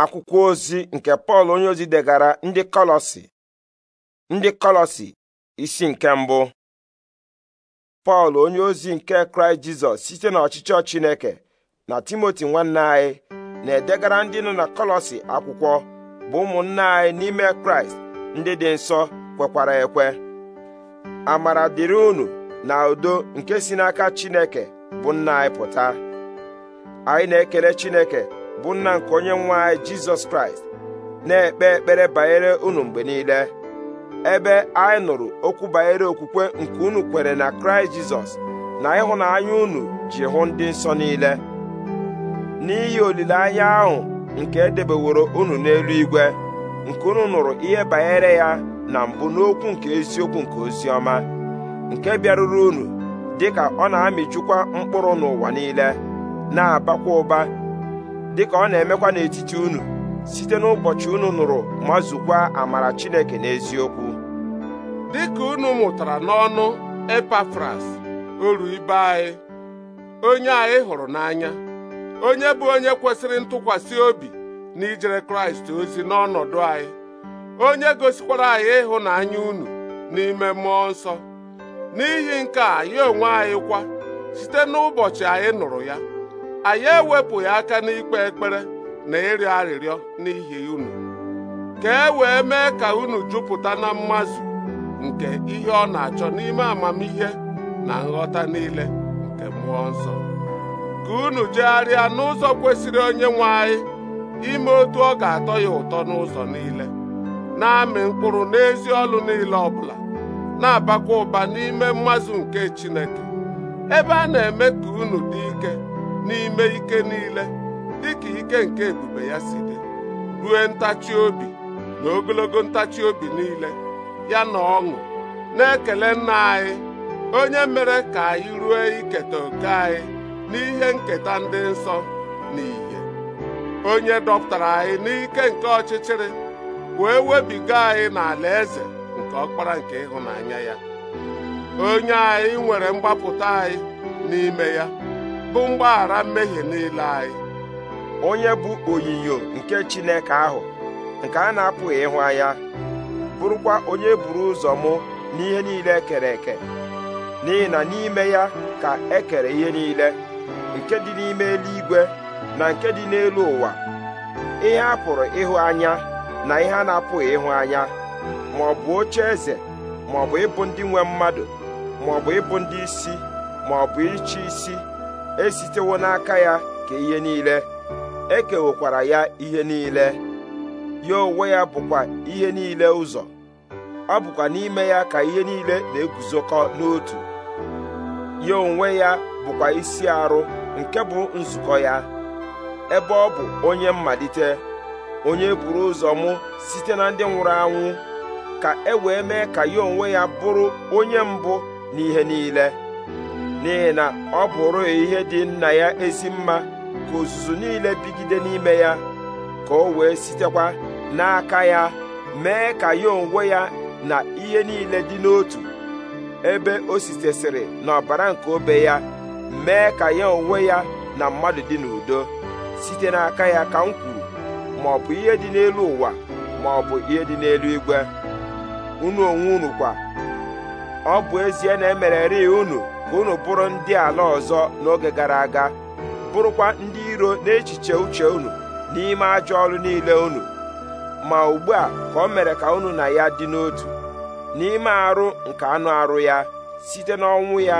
akwụkwọ ozi nke pọl onye ozi degara ndị kọlọsi ndị kọlọsi isi nke mbụ pọl onye ozi nke kraịst jizọs site n'ọchịchọ chineke na timoti nwanne anyị na-edegara ndị nọ na kọlọsi akwụkwọ bụ ụmụnna anyị n'ime kraịst ndị dị nsọ kwekwara ekwe amara dịrị unu na udo nke si n'aka chineke bụ nna anyị pụta anyị na-ekele chineke bụ nna nke onye nwe anyị jizọs kraịst na-ekpe ekpere banyere unu mgbe niile ebe anyị nụrụ okwu banyere okwukwe nke unu kwere na kraịst jizọs na ịhụnanya unu ji hụ ndị nsọ niile n'ihi olileanya ahụ nke edebeworo unu n'eluigwe nke unu nụrụ ihe banyere ya na mbụ n'okwu nke eziokwu nke oziọma nke bịaruru unu dịka ọ na-amịjukwa mkpụrụ n'ụwa niile na-abakwa ụba dịka ọ na-emekwa n'etiti unu site n'ụbọchị unu nụrụ ma zukwa amara Chineke n'eziokwu dịka unu mụtara n'ọnụ Epafras oru ibe anyị onye anyị hụrụ n'anya onye bụ onye kwesịrị ntụkwasị obi ijere Kraịst ozi n'ọnọdụ anyị onye gosikwara anyị ịhụnanya unu n'ime mmụọ nsọ n'ihi nke a ya onwe anyị kwa site n'ụbọchị anyị nụrụ ya anyị ewepụghị aka n'ikpe ekpere na ịrịọ arịrịọ n'ihi unu ka e wee mee ka unu jupụta na mmazụ nke ihe ọ na-achọ n'ime amamihe na nghọta niile nke mmụọ nsọ ka unu jegharịa n'ụzọ kwesịrị onye nwe anyị ime otu ọ ga-atọ ya ụtọ n'ụzọ niile na-amị mkpụrụ n'ezi ọlụ niile ọ bụla, na-abakwa ụba n'ime mmazụ nke Chineke ebe a na-eme ka unu dị ike n'ime ike niile dịka ike nke ebube ya si dị rue ntachi obi na ogologo ntachi obi niile ya na ọṅụ na-ekele nna anyị onye mere ka anyị ruo iketa oke anyị n'ihe nketa ndị nsọ na ìhè onye dọpụtara anyị n'ike nke ọchịchịrị wee webiga anyị n'ala eze nke ọkpara nke ịhụnanya ya onye anyị nwere mgbapụta anyị n'ime ya bụ mgbaghara mmehie niile anyị onye bụ onyinyo nke Chineke ahụ nke a na-apụghị ịhụ anya bụrụkwa onye buru ụzọ mụ n'ihe niile e kere eke n'ihi na n'ime ya ka ekere ihe niile nke dị n'ime eluigwe na nke dị n'elu ụwa ihe a pụrụ ịhụ anya na ihe a na-apụghị ịhụ anya ma ọ bụ oche eze ma ọ bụ ịbụ ndị nwe mmadụ ma ọ bụ ịbụ ndị isi ma ọ bụ ịchị isi esitewo n'aka ya ka ihe niile ekewekwara ya ihe niile ya onwe ya bụkwa ihe niile ụzọ ọ bụkwa n'ime ya ka ihe niile na-eguzokọ n'otu ya onwe ya bụkwa isi arụ nke bụ nzukọ ya ebe ọ bụ onye mmalite onye buru ụzọ mụ site na ndị nwụrụ anwụ ka e wee mee ka ya onwe ya bụrụ onye mbụ n'ihe niile n'ihi na ọ bụrụ ihe dị nna ya ezi mma ka ozuzu niile bigide n'ime ya ka o wee sitekwa n'aka ya mee ka ya onwe ya na ihe niile dị n'otu ebe o sitesịrị n'ọbara nke obe ya mee ka ya onwe ya na mmadụ dị n'udo site n'aka ya ka m kwuru ma ọ bụ ihe dị n'elu ụwa ma ọ bụ ihe dị n'elu igwe unu onwe unu kwa ọ bụ ezie na emereri unu ka unu bụrụ ndị ala ọzọ n'oge gara aga bụrụkwa ndị iro n'echiche uche unu n'ime ajọ ọrụ niile unu ma ugbu a ka o mere ka unu na ya dị n'otu n'ime arụ nke anụ arụ ya site n'ọnwụ ya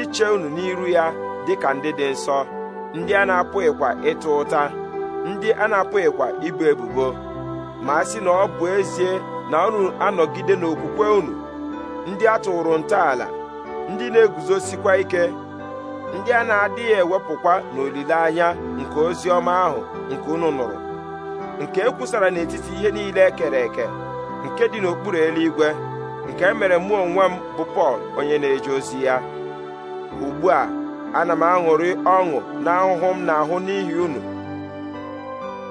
iche unu n'iru ya dịka ndị dị nsọ ndị a na-apụghịkwa ịta ụta ndị a na-apụghịkwa ibu ebubo ma a sị na ọ bụ ezie na unu anọgide n'okwukwe unu ndị a tụrụ ntọala ndị na-eguzosikwa ike ndị a na-adịghị ewepụkwa n'olileanya nke ozi ọma ahụ nke unu nụrụ nke e kwusara n'etiti ihe niile e kere eke nke dị n'okpuru eluigwe nke e mere mụ onwe m bụ Pọl onye na-eje ozi ya ugbu a ana m aṅụrị ọṅụ na ahụhụ m na-ahụ n'ihi unu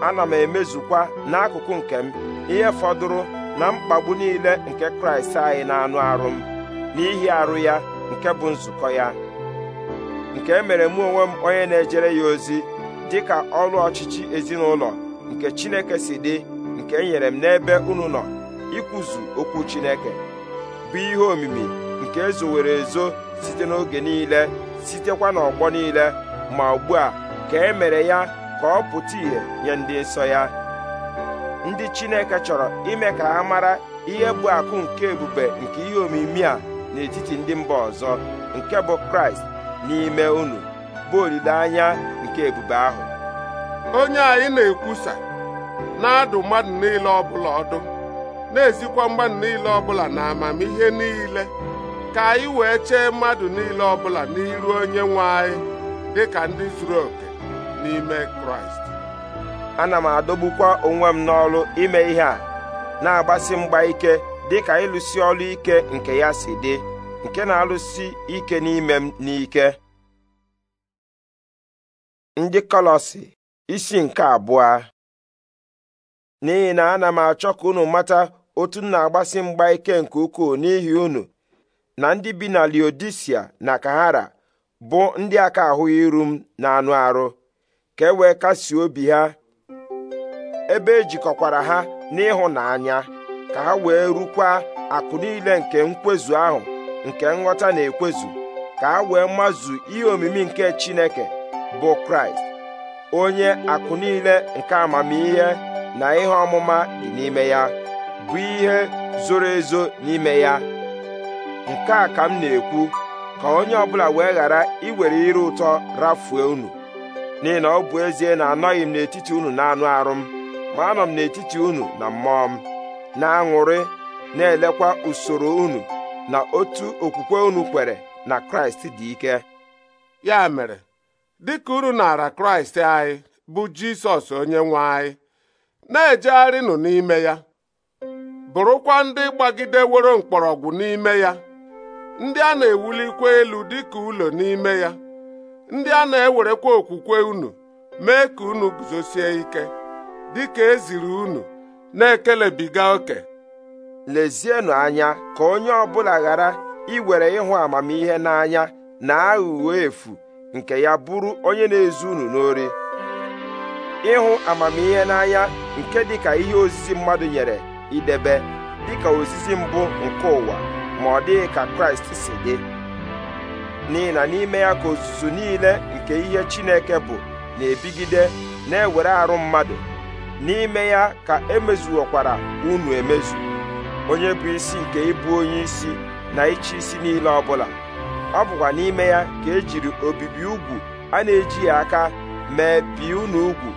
ana m emezukwa n'akụkụ nke m ihe fọdụrụ na mkpagbu niile nke Kraịst anyị na anụ arụ m n'ihi arụ ya nke bụ nzukọ ya nke e mere mụ onwe m onye na-ejere ya ozi dị ka ọrụ ọchịchị ezinụlọ nke Chineke si dị nke e nyere m n'ebe unu nọ ikwuzu okwu Chineke bụ ihe omimi nke ezowere ezo site n'oge niile sitekwa n'ọgbọ niile ma ugbu a ka e mere ya ka ọ pụta ìhè nye ndị nsọ ya ndị Chineke chọrọ ime ka ha mara ihe bụ akụ nke ebube nke ihe omimi a n'etiti ndị mba ọzọ nke bụ kraịst n'ime unu bụ olileanya nke ebube ahụ onye anyị na-ekwusa na-adụ mmadụ niile ọbụla ọdụ na-ezikwa mmadụ niile ọbụla na amamihe niile ka anyị wee chee mmadụ niile ọbụla n'iru onye nwe anyị dị ka ndị zuru oke n'ime kraịst ana m adọgbukwa onwe m n'ọrụ ime ihe a na-agbasi mgba ike dị ka ịlụsi ọlụ ike nke ya si dị nke na-alụsi ike n'ime m n'ike ndị kọlọsi isi nke abụọ n'ihi na ana m achọ ka unu mata otu m na-agbasi mgba ike nke ukwuu n'ihi unu na ndị bi na Liodisia na Kahara bụ ndị aka ahụghị iru m na anụ arụ ka e wee kasie obi ha ebe ejikọkwara ha n'ịhụnanya ka ha wee rukwa akụ niile nke nkwezu ahụ nke nghọta na-ekwezu ka ha wee mazu ihe omimi nke Chineke bụ Kraịst onye akụ niile nke amamihe na ihe ọmụma dị n'ime ya bụ ihe zoro ezo n'ime ya nke a ka m na-ekwu ka onye ọbụla wee ghara iwere ire ụtọ rafue unu n'ihi na ọ bụ ezie na anọghị m n'etiti unu na anụ arụ m ma anọ m n'etiti unu na mmụọ m na-aṅụrị na-elekwa usoro unu na otu okwukwe unu kwere na kraịst dị ike ya mere dịka unu nara kraịst anyị bụ jisọs onye nwe anyị na-ejegharịnụ n'ime ya bụrụkwa ndị gbagideworo mkpọrọgwụ n'ime ya ndị a na-ewulikwa elu dịka ụlọ n'ime ya ndị a na-ewerekwa okwukwe unu mee ka unu guzosie ike dịka eziri unu na-ekelebiga oke lezienụ anya ka onye ọbụla ghara iwere ịhụ amamihe n'anya na aghụghọ efu nke ya bụrụ onye na-ezu unu n'ori ịhụ amamihe n'anya nke dịka ihe ozizi mmadụ nyere idebe dịka ozizi mbụ nke ụwa ma ọ dịghị ka Kraịst si dị n'ihi na n'ime ya ka ozuzu niile nke ihe Chineke bụ na-ebigide na-ewere arụ mmadụ n'ime ya ka emezuokwara unu emezu onye bụ isi nke ịbụ onye isi na ịchị isi niile ọbụla ọ bụkwa n'ime ya ka ejiri obibi ugwu a na eji ya aka mee bi unu ugwu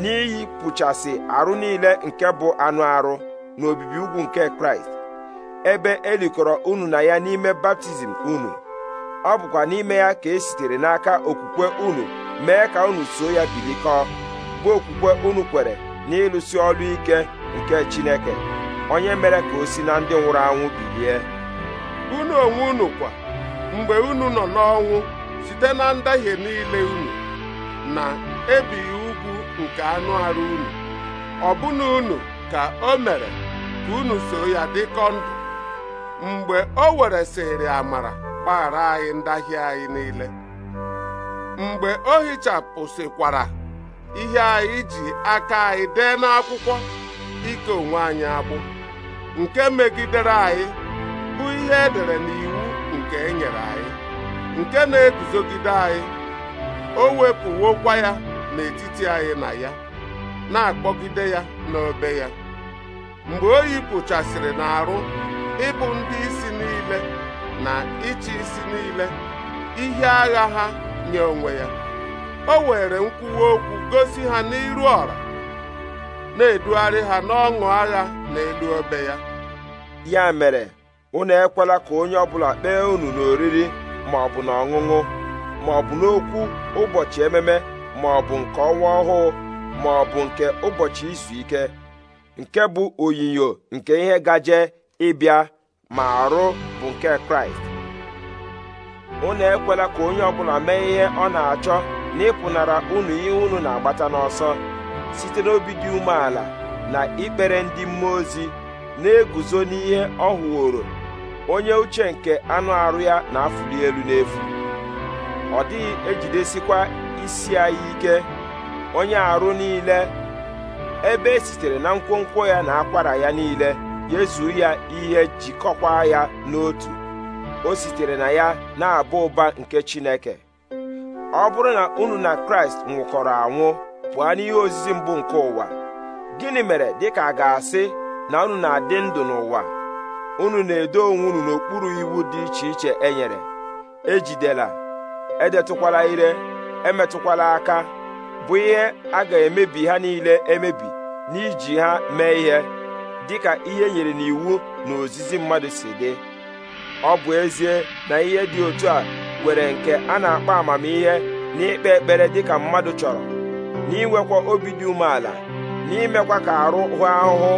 n'iyi pụchasị arụ niile nke bụ anụ arụ na obibi ugwu nke kraịst ebe elikọrọ unu na ya n'ime baptizim unu ọ bụkwa n'ime ya ka esitere n'aka okwukwe unu mee ka unu so ya bilikọọ bụ okwukwe unu kwere n'ịlụsi ọrụ ike nke Chineke onye mere ka o si na ndị nwụrụ anwụ bilie unu onwe unu kwa mgbe unu nọ n'ọnwụ site na ndahie niile unu na ebighị ugwu nke anụ arụ unu ọbụna unu ka o mere ka unu so ya dịkọ ndụ mgbe o weresịrị amara gbaghara anyị ndahie anyị niile mgbe o hichapụsịkwara ihe anyị ji aka anyị dee n'akwụkwọ ike onwe anyị agbụ nke megidere anyị bụ ihe edere n'iwu nke enyere anyị nke na-eguzogide anyị o wepụwokwa ya n'etiti anyị na ya na-akpọgide ya n'obe ya mgbe o yipụchasịrị n'arụ ịbụ ndị isi niile na ịchị isi niile ihe agha ha nye onwe ya o were nkwuwa okwu gosi ha n'iru ọra na-edugharị ha n'ọṅụ agha n'elu obe ya ya mere unu ekwela ka onye ọbụla kpee unu n'oriri ma ọ bụ n'ọṅụṅụ, ma ọ bụ n'okwu ụbọchị ememe ma ọ bụ nke ọnwa ọhụụ ma ọ bụ nke ụbọchị izu ike nke bụ onyinyo nke ihe gaje ịbịa ma arụ bụ nke kraịst unu ekwela ka onye ọbụla mee ihe ọ na-achọ na ịpụnara unu ihe unu na-agbata n'ọsọ site n'obi dị umeala na ikpere ndị mmụọ ozi na-eguzo n'ihe ọ hụworo onye uche nke anụ arụ ya na-afụli elu n'efu ọ dịghị ejidesikwa isi anyị ike onye arụ niile ebe e sitere na nkwonkwo ya na akwara ya niile yezuo ya ihe jikọkwa ya n'otu o sitere na ya na-aba ụba nke Chineke ọ bụrụ na unu na kraịst nwụkọrọ anwụ pụọ n'ihe ozizi mbụ nke ụwa gịnị mere dịka a ga-asị na unu na-adị ndụ n'ụwa unu na-edo onwe unu n'okpuru iwu dị iche iche e nyere ejidela edetụkwala ire emetụkwala aka bụ ihe a ga-emebi ha niile emebi n'iji ha mee ihe dịka ihe e nyere n'iwu na ozizi mmadụ si dị ọ bụ ezie na ihe dị otu a nwere nke a na-akpọ amamihe na ikpe ekpere dịka mmadụ chọrọ na obi dị umeala n'imekwa ka arụ hụ ahụhụ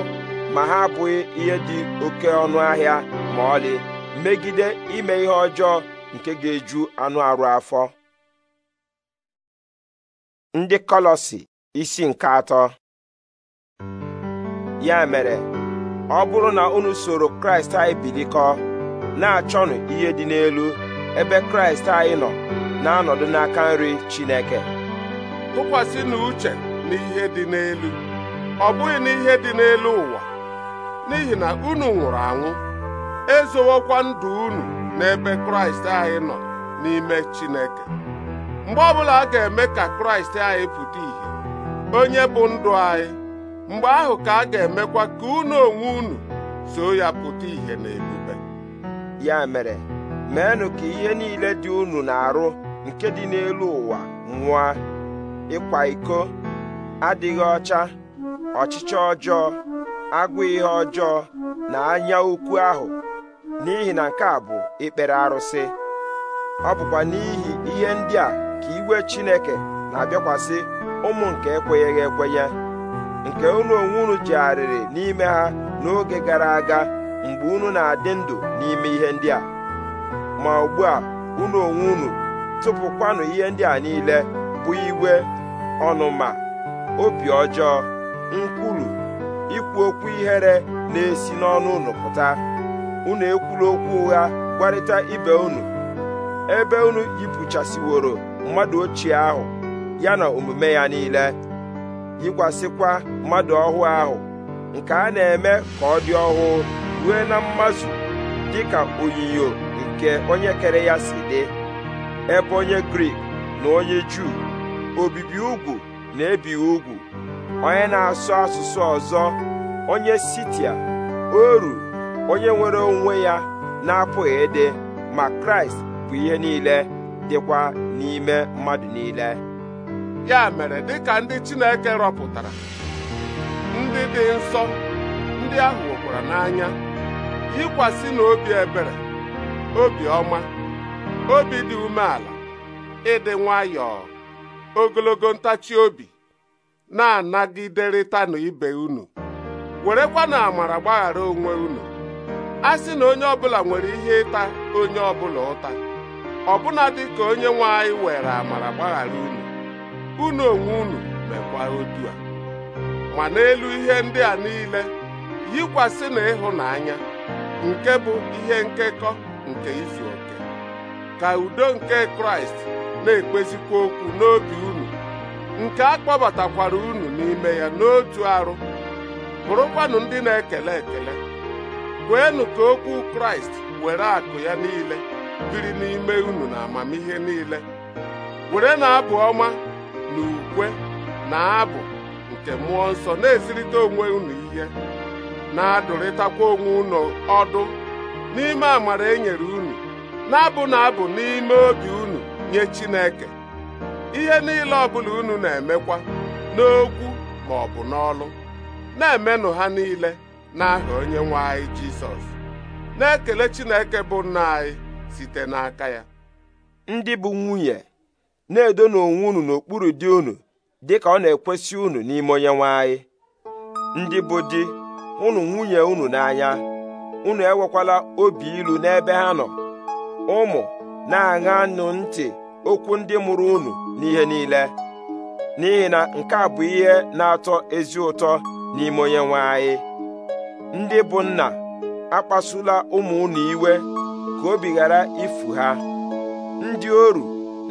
ma ha abụghị ihe dị oke ọnụ ahịa ma ọlị megide ime ihe ọjọọ nke ga-eju anụ arụ afọ ndị kọlọsi isi nke atọ ya mere ọ bụrụ na unu soro kraịst anyị bilikọ na-achọnụ ihe dị n'elu ebe kraịst anyị nọ na-anọdụ n'aka nri chineke tụkwasị na uche n'ihe dị n'elu ọ bụghị n'ihe dị n'elu ụwa n'ihi na unu nwụrụ anwụ ezowokwa ndụ unu n'ebe kraịst anyị nọ n'ime chineke mgbe ọbụla a ga-eme ka kraịst anyị pụta ìhè onye bụ ndụ anyị mgbe ahụ ka a ga-emekwa ka unu onwe unu so ya pụta ìhè n'ebube ya mere meenụ ka ihe niile dị unu na-arụ nke dị n'elu ụwa nwụọ; ịkwa iko adịghị ọcha ọchịchị ọjọọ agụ ihe ọjọọ na anya ukwu ahụ n'ihi na nke a bụ ikpere arụsị ọ bụkwa n'ihi ihe ndị a ka iwe Chineke na-abịakwasị ụmụ nke ekwenyeghị ekwenye nke unu onwe unu jegharịrị n'ime ha n'oge gara aga mgbe unu na-adị ndụ n'ime ihe ndị a ma ugbu a unu onwe unu tụpụkwanụ ihe ndị a niile bụ igwe ọnụma obi ọjọọ nkwulu ikwu okwu ihere na-esi n'ọnụ unu pụta unu ekwulu okwu ụgha gwarịta ibe unu ebe unu yipụchasịworo mmadụ ochie ahụ ya na omume ya niile yikwasịkwa mmadụ ọhụụ ahụ nke a na-eme ka ọ dị ọhụụ rue na mmazu dịka onyinyo nke onye kere ya si dị ebe onye Grik na onye Juu obibi ugwu na ebi ugwu onye na-asụ asụsụ ọzọ onye Sitia oru onye nwere onwe ya na-apụghị ịdị ma Kraịst bụ ihe niile dịkwa n'ime mmadụ niile ya mere dịka ndị Chineke rọpụtara ndị dị nsọ ndị ahụ nwekwara n'anya yikwasị na obi ebere obi ọma obi dị umeala ịdị nwayọọ ogologo ntachi obi na-anagiderịtanụ ibe unu werekwa na amara gbaghara onwe unu a sị na onye ọbụla nwere ihe ịta onye ọbụla ụta ọbụna dị ka onye nwe anyị were amara gbaghara unu unu onwe unu mekwa otu ma n'elu ihe ndị a niile yikwasị na ịhụnanya nke bụ ihe nkekọ nke izu oke ka udo nke kraịst na-ekpezikwa okwu n'oge unu nke a kpọbatakwara unu n'ime ya n'otu arụ bụrụkwanụ ndị na-ekele ekele kweenụ ka okwu kraịst were akụ ya niile biri n'ime unu na amamihe niile were na-abụ ọma na ukwe na abụ nke mmụọ nsọ na-ezirịta onwe unu ihe na-adụrịtakwa onwe unu ọdụ n'ime amara e nyere unu na-abụ na abụ n'ime obi unu nye Chineke ihe niile ọbụla unu na-emekwa n'okwu ma ọ bụ n'ọlụ na-emenụ ha niile n'aha onye nwe anyị Jizọs na-ekele Chineke bụ nna anyị site n'aka ya ndị bụ nwunye na-edo n'onwe unu n'okpuru di unu dịka ọ na-ekwesị unu n'ime onye nwe anyị ndị bụ di unu nwunye unu n'anya unu enwekwala obi ilu n'ebe ha nọ ụmụ na-aṅanụ ntị okwu ndị mụrụ unu n'ihe niile n'ihi na nke a bụ ihe na-atọ ezi ụtọ n'ime onye nwe anyị ndị bụ nna akpasula ụmụ unu iwe ka obi ghara ifu ha ndị oru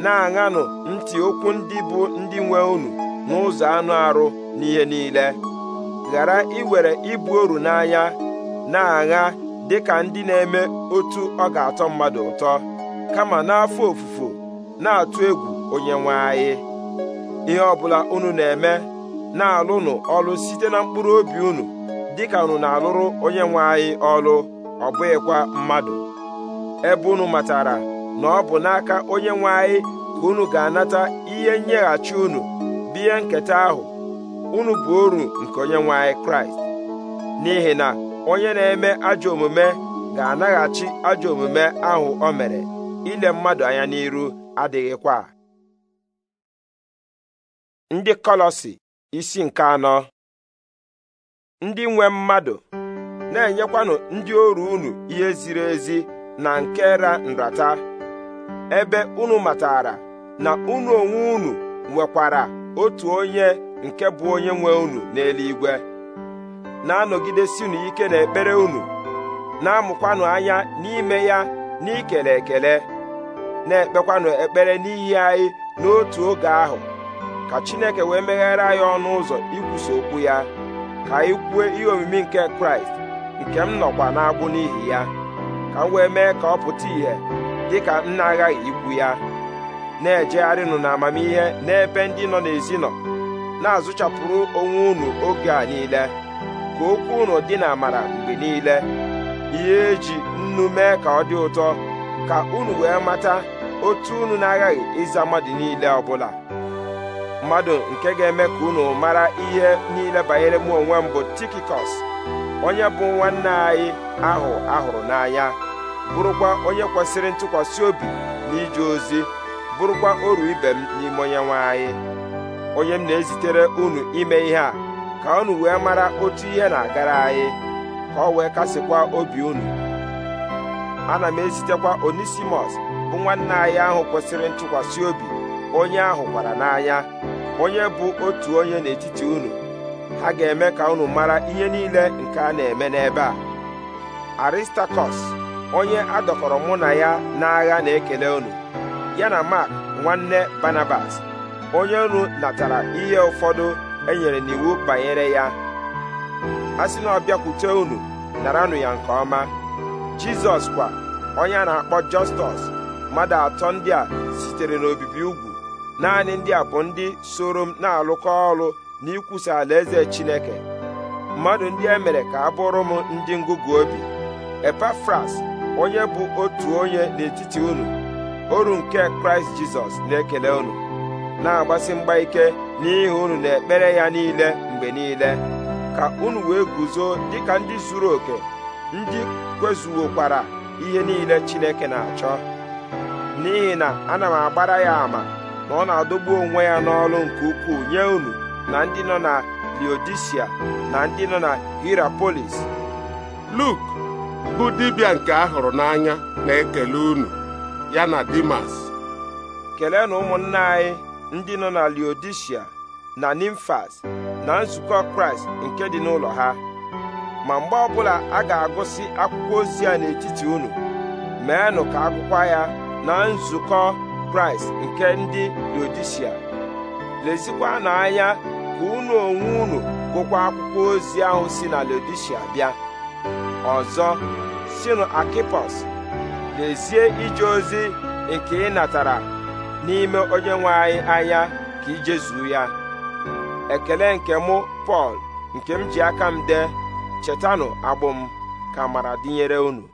na-aṅanụ ntị okwu ndị bụ ndị nwe unu n'ụzọ anụ arụ n'ihe niile ghara iwere ibu oru n'anya na-agha dịka ndị na-eme otu ọ ga-atọ mmadụ ụtọ kama n'afọ ofufo na-atụ egwu onye nwe anyị ihe ọbụla unu na-eme na-alụnụ ọlụ site na mkpụrụ obi unu dịka unu na-alụrụ onye nwe anyị ọlụ ọ bụghịkwa mmadụ ebe unu matara na ọ bụ n'aka onye nwe anyị ka unu ga-anata ihe nyeghachi unu biye nketa ahụ unu bụ oru nke onye nwe anyị kraịst n'ihi na onye na-eme ajọ omume ga-anaghachi ajọ omume ahụ o mere ile mmadụ anya n'iru adịghịkwa ndị kọlọsi isi nke anọ ndị nwe mmadụ na-enyekwanụ ndị oru unu ihe ziri ezi na nke ra nrata ebe unu matara na unu onwe unu nwekwara otu onye nke bụ onye nwe unu n'eluigwe na-anọgidesinụ ike n'ekpere unu na-amụkwanụ anya n'ime ya n'ikele ekele na-ekpekwanụ ekpere n'ihi anyị n'otu oge ahụ ka Chineke wee meghere anyị ọnụ ụzọ ikwusa okwu ya ka anyị kwuo ihe omimi nke Kraịst nke m nọkwa agbụ n'ihi ya ka m wee mee ka ọ pụta ìhè dịka m na-aghaghị ikwu ya na-ejegharịnụ n'amamihe n'ebe ndị nọ n'ezi nọ na-azụchapụrụ onwe unu oge a niile ka okwu unu dị na amara mgbe niile ihe eji nnu mee ka ọ dị ụtọ ka unu wee mata otu unu na-aghaghị ịza mmadụ niile ọbụla mmadụ nke ga-eme ka unu mara ihe niile banyere m onwe m bụ Tikikọs onye bụ nwanne anyị ahụ ahụrụ n'anya bụrụkwa onye kwesịrị ntụkwasị obi na ije ozi bụrụkwa oru ibe m n'ime onye nwe anyị onye m na-ezitere unu ime ihe a ka unu wee mara otu ihe na-agara anyị ka ọ wee kasịkwa obi unu ana m ezitekwa onisimos bụ nwanne anyị ahụ kwesịrị ntụkwasị obi onye ahụ gwara n'anya onye bụ otu onye n'etiti unu ha ga-eme ka unu mara ihe niile nke a na-eme n'ebe a Aristakọs onye adọkọrọ mụ na ya n'agha na-ekele unu ya na Mark nwanne Barnabas onye unu natara ihe ụfọdụ e nyere n'iwu banyere ya a sị na ọ bịakwute unu naranụ ya nke ọma jizọs kwa onye a na-akpọ jọstọs mmadụ atọ ndị a sitere n'obibi ugwu naanị ndị a bụ ndị soro m na-alụkọ ọrụ n'ikwusa alaeze chineke mmadụ ndị e mere ka a bụrụ m ndị ngụgụ obi epafras onye bụ otu onye n'etiti unu oru nke kraịst jizọs na-ekele unu na-agbasi mgba ike n'ihi unu na ekpere ya niile mgbe niile ka unu wee guzo dịka ndị zuru oke ndị kwezuwokwara ihe niile Chineke na-achọ n'ihi na ana m agbara ya ama na ọ na-adọgbu onwe ya n'ọrụ nke ukwuu nye unu na ndị nọ na Leodisia na ndị nọ na Hirapolis Luk bụ dibịa nke a hụrụ n'anya na-ekele unu ya na Dimas kelee na ụmụnna anyị ndị nọ na Leodishia na Nimfas na nzukọ Kraịst nke dị n'ụlọ ha ma mgbe ọbụla a ga-agụsị akwụkwọ ozi a n'etiti unu meenụ ka akwụkwọ ya na nzukọ Kraịst nke ndị Leodishia lezikwa na anya ka unu onwe unu gụkwa akwụkwọ ozi ahụ si na Leodishia bịa ọzọ sinu Akipos lezie ije ozi nke ị natara n'ime onye nwe anyị anya ka ijezuo ya ekele nke mụ Pọl nke m ji aka m dee chetanụ agbụ m ka mara dịnyere unu